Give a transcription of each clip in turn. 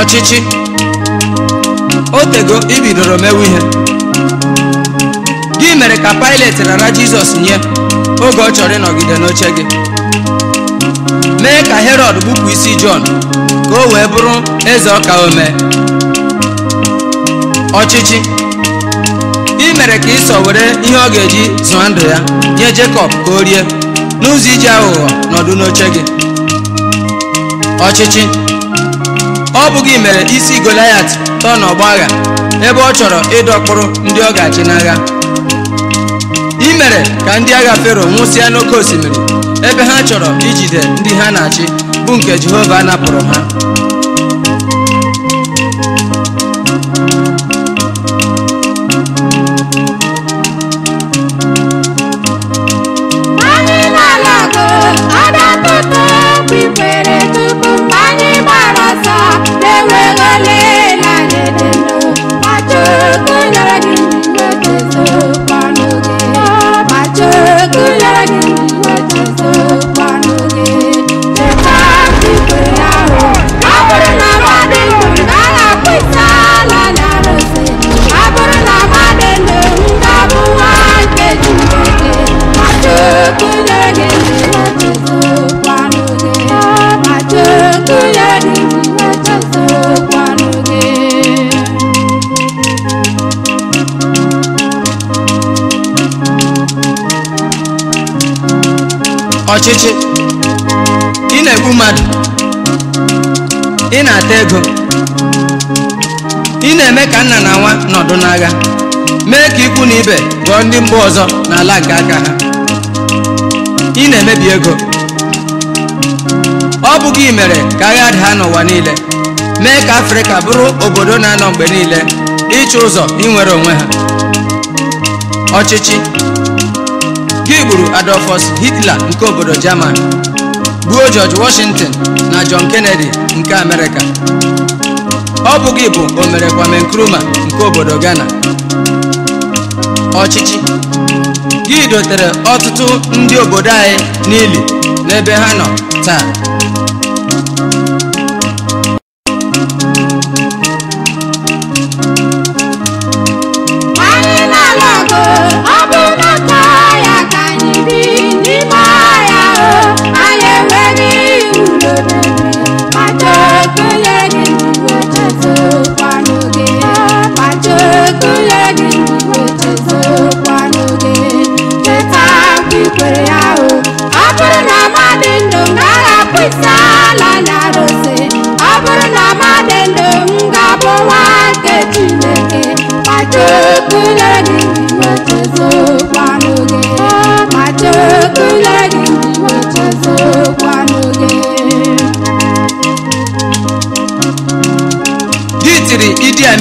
ọchịchị o ibidoro mewe ihe gị mere ka Pilet rara Jizọs nye oge ọ chọrọ ịnọgide n'oche gị mee ka Herọd bupụ isi Jọn ka o wee bụrụ eze ọka omee ọchịchị ị mere ka Ịsọ were ihe ọ ga-eji zụọ ndụ ya nye Jekọb ka o rie n'ụzọ iji aghụghọ nọdụ n'oche gị ọchịchị ọ bụghị mere isi Goliat tọọ agha ebe ọ chọrọ ịdọkpụrụ ndị ọ ga-achị n'agha i mere ka ndị agha Fero nwụsịa n'oké osimiri ebe ha chọrọ ijide ndị ha na-achị bụ nke Jehova napụrụ ha ọchịchị ị na-egbu mmadụ ị na-ata ego ị na-eme ka nna na nwa nọdụ n'agha mee ka ikwu na ibe ghọọ ndị mba ọzọ n'ala nke aka ha ị na-emebi ego ọ bụghị imere mere ka agha daa n'ụwa niile mee ka afrịka bụrụ obodo na-anọ mgbe niile ịchụ ụzọ inwere onwe ha ọchịchị Gị e gburu Adolfus Hitler nke obodo German gbuo George Washington na John Kennedy nke Amerịka ọ bụghị bụ omere Kwame Nkrumah nke obodo Ghana ọchịchị gị dotere ọtụtụ ndị obodo anyị n'ili n'ebe ha nọ taa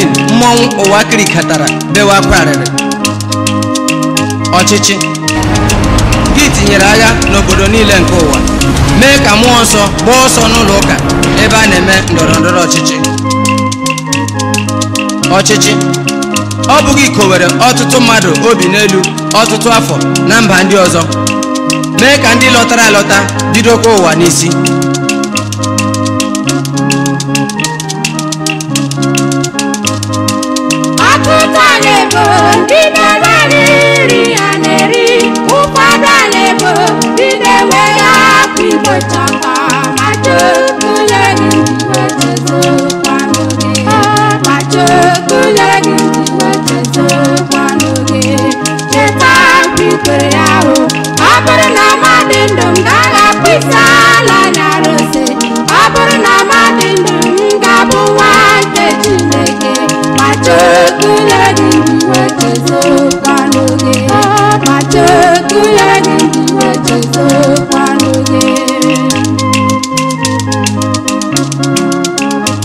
screen mmọnwụ ụwa kirikatara bewe akwa ọchịchị gị tinyere agha n'obodo niile nke ụwa mee ka mmụọ nsọ gbaa ọsọ n'ụlọ ụka ebe a na-eme ndọrọ ọchịchị ọchịchị ọ bụghị ikowere ọtụtụ mmadụ obi n'elu ọtụtụ afọ na mba ndị ọzọ mee ka ndị lọtara alọta bidokwa ụwa n'isi Bye.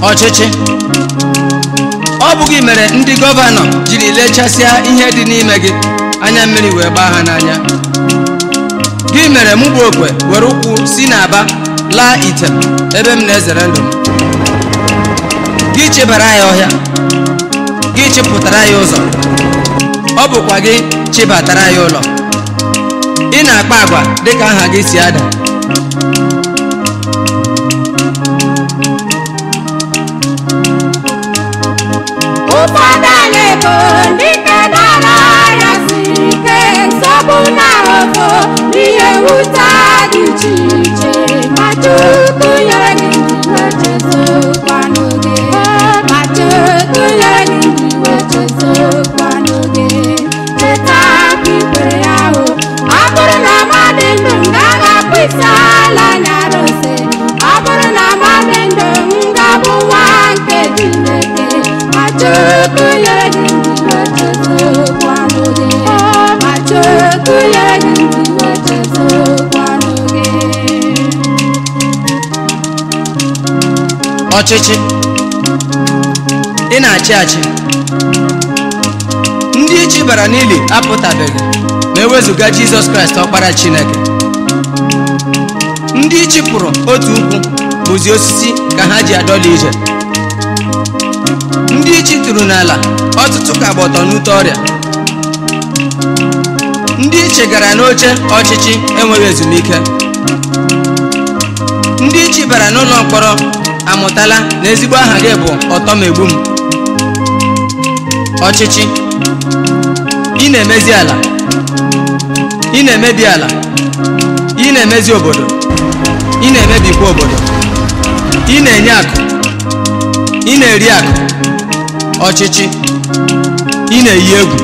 ọchịchị ọ bụ gị mere ndị gọvanọ jiri lechasịa ihe dị n'ime gị anya mmiri wee gbaa ha n'anya gị mere mụ bụ okwe were ụkwụ si n'aba laa ite ebe m na-ezere ndụ m gị chebara ya ọhịa gị chịpụtara ya ụzọ ọ bụkwa gị chịbatara ya ụlọ ị na-akpa agwa dịka aha gị si ada Ụfọdụ anyị bụ ndị ike dara ya si ike nsogbu na ọgọ n'ihe nwute dị iche ọchịchị ị na-achị achị ndị ichi bara n'ili apụtabeghị ma ewezụga jizọs kraịst ọkpara chineke ndị ichi pụrụ otu ukwu bụzi osisi ka ha ji adọla ije ndị ichi tụrụ n'ala ọtụtụ ka gba ọtọ n'ute ọrịa ndị ichi gara n'oche ọchịchị enweghị ezumike ndị ichi bara n'ụlọ mkpọrọ amụtala na ezigbo aha gị bụ ọtọmegbu m ọchịchị ị na-emezi ala ị na-emebi ala ị na-emezi obodo ị na-emebikwa obodo ị na-enye akụ ị na-eri akụ ọchịchị ị na-eyi egwu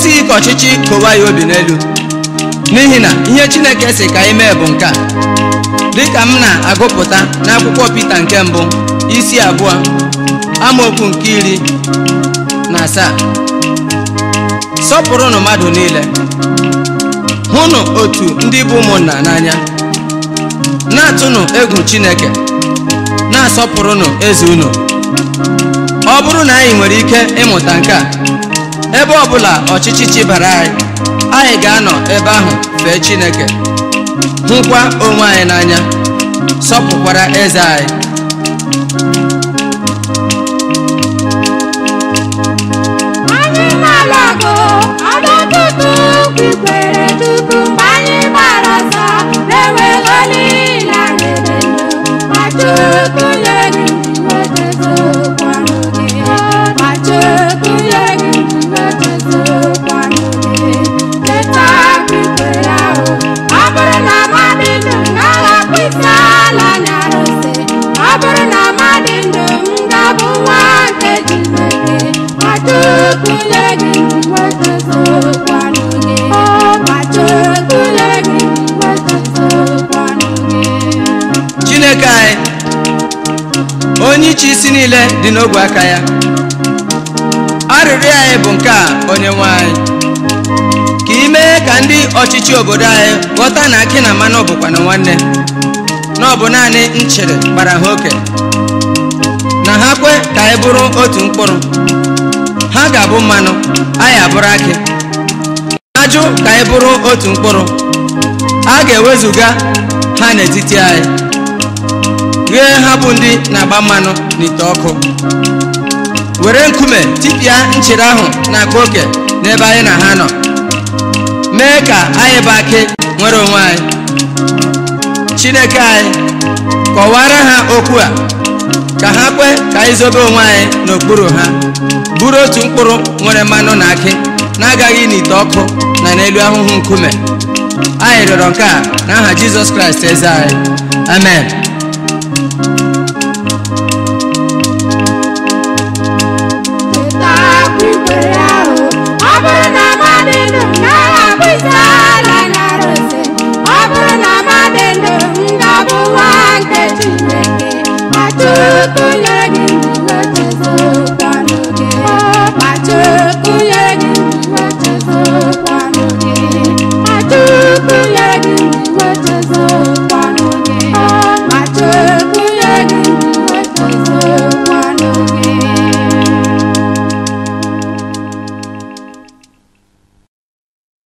esighị ka ọchịchị kowa ya obi n'elu n'ihi na ihe chineke si ka anyị mee bụ nke a dịka m na-agụpụta n'akwụkwọ Pita nke mbụ isi abụọ amaokwu nke iri na asaa sọpụrụnụ mmadụ niile hụnụ otu ndị bụ ụmụnna n'anya na-atụnụ egwu chineke na-asọpụrụnụ eze unu ọ bụrụ na anyị nwere ike ịmụta nke a ebe ọbụla ọchịchị chibara anyị anyị ga-anọ ebe ahụ fee Chineke hụkwa onwe anyị n'anya sọpụkwara eze anyị chineke anyị onye iche isi niile dị n'ogwe aka ya arịrịọ anyị bụ nke a onye nwe anyị ka ị mee ka ndị ọchịchị obodo anyị ghọta na akị na mmanụ na nwanne na ọ bụ naanị nchere gbara ha oke na ha kwe ka anyị bụrụ otu mkpụrụ ha ga-abụ mmanụ anyị abụrụ akị ajụ ka anyị bụrụ otu mkpụrụ a ga-ewezuga ha n'etiti anyị ghee ha bụ ndị na-agba mmanụ n'ite ọkụ were nkume tipịa nchere ahụ na agba oke n'ebe anyị na ha nọ mee ka anyị bụ akị nwere onwe anyị chineke anyị kọwara ha okwu a ka ha kwe ka anyị zobe onwe anyị n'okpuru ha buru otu mkpụrụ nwere mmanụ na akị na-agaghị n'ite ọkụ na n'elu ahụhụ nkume anyị rịọrọ nke a n'aha Jizọs Kraịst eze anyị amen